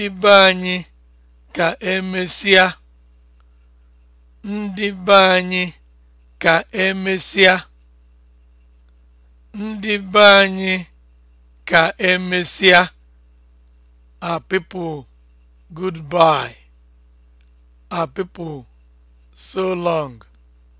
ndị be anyị ka emesịa ndị be anyị ka emesịa ndị be anyị ka emesịa our people goodbye our people so long